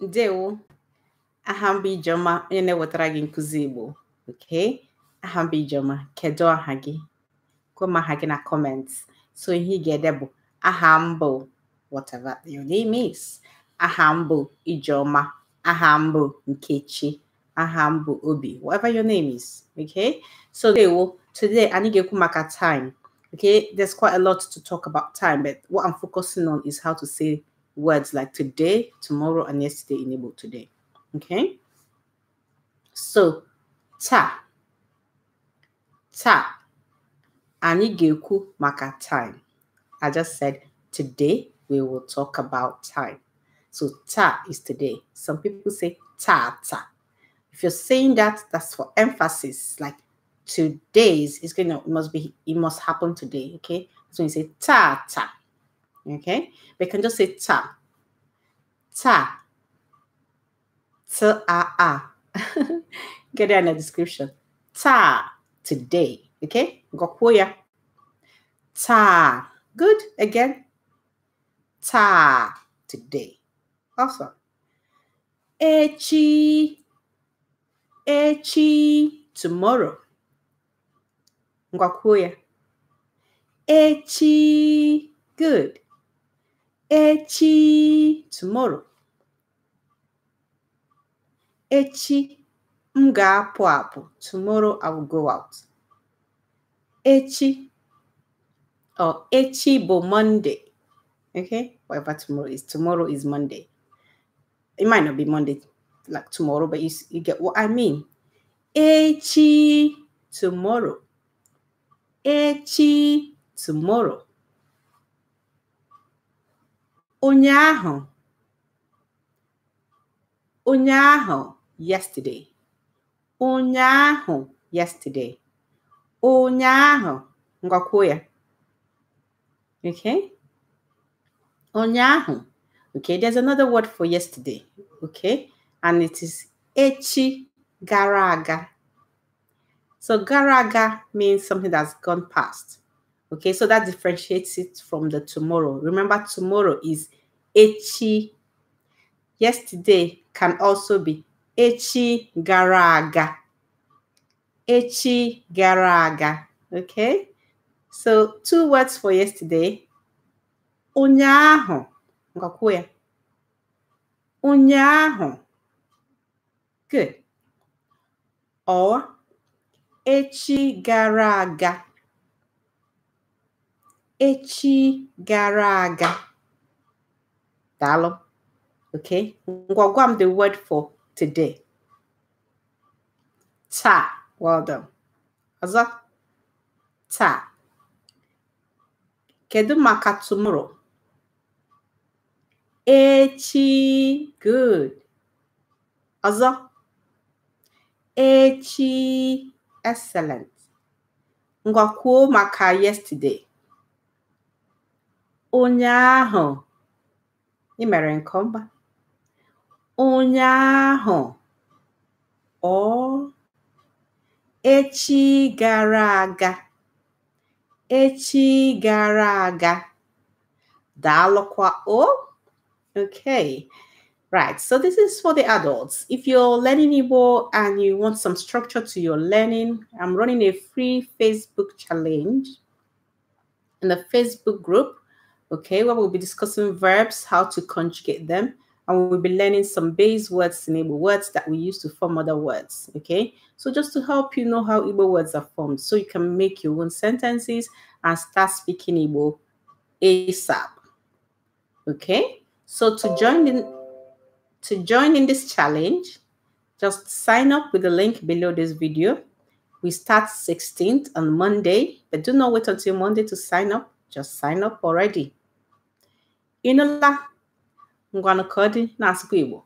Ndewo. Aha m bụ Ijeọma onye na-ewetara gị nkụzi Igbo. Okay? Aha m bụ Ijeọma. Kedu aha gị? aha gị na comments. So ihe ị ga-ede bụ aha whatever your name is. Aha m bụ Ijeọma. Aha m Nkechi. Aha m Obi. Whatever your name is. Okay? So ndewo. Today anyị ga-ekwu maka time. Okay? There's quite a lot to talk about time, but what I'm focusing on is how to say words like today, tomorrow, and yesterday in today. Okay? So, ta. Ta. Ani ga ga-ekwu maka time. I just said today we will talk about time. So ta is today. Some people say ta ta. If you're saying that, that's for emphasis. Like today's is gonna must be it must happen today. Okay. So you say ta ta. Okay, we can just say ta, ta, Ah. Get it in the description. Ta today. Okay, gokuya. Ta. Good. Again. Ta today. Awesome. Echi. Echi tomorrow. Ngwakuya. Echi. Good echi tomorrow echi m ga-apụ apụ tomorrow i will go out echi or echi bụ monday okay whatever tomorrow is tomorrow is monday it might not be monday like tomorrow but you, you get what i mean echi tomorrow echi tomorrow ụnyaahụ ụnyaahụ yesterday ụnyaahụ yesterday ụnyaahụ ngwakwuo ya okay ụnyaahụ okay there's another word for yesterday okay and it is echi gara aga so gara aga means something that's gone past Okay, so that differentiates it from the tomorrow. Remember, tomorrow is echi. Yesterday can also be echi garaga. Echi garaga. Okay, so two words for yesterday. Unyaho. Unyaho. Good. Or echi garaga echi gara aga. Dalo. Okay. Ngwagwam the word for today. Ta. Well done. Ọzọ. Ta. Kedu maka tomorrow? Echi. Good. Ọzọ. Echi. Excellent. Ngwa maka yesterday ụnyaahụ ị mere nke ọma ụnyaahụ ọ echi gara aga echi gara aga daalụkwa o okay Right, so this is for the adults. If you're learning Igbo and you want some structure to your learning, I'm running a free Facebook challenge in the Facebook group okay, where we'll be discussing verbs, how to conjugate them, and we'll be learning some base words in Igbo words that we use to form other words, okay? So just to help you know how Igbo words are formed, so you can make your own sentences and start speaking Igbo ASAP, okay? So to join in, to join in this challenge, just sign up with the link below this video. We start 16th on Monday, but do not wait until Monday to sign up. Just sign up already. ịnụla ngwanụ ka ọ dị na-asụkwa Igbo